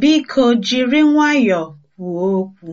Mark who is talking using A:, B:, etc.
A: Biko jiri nwayọọ kwuo okwu.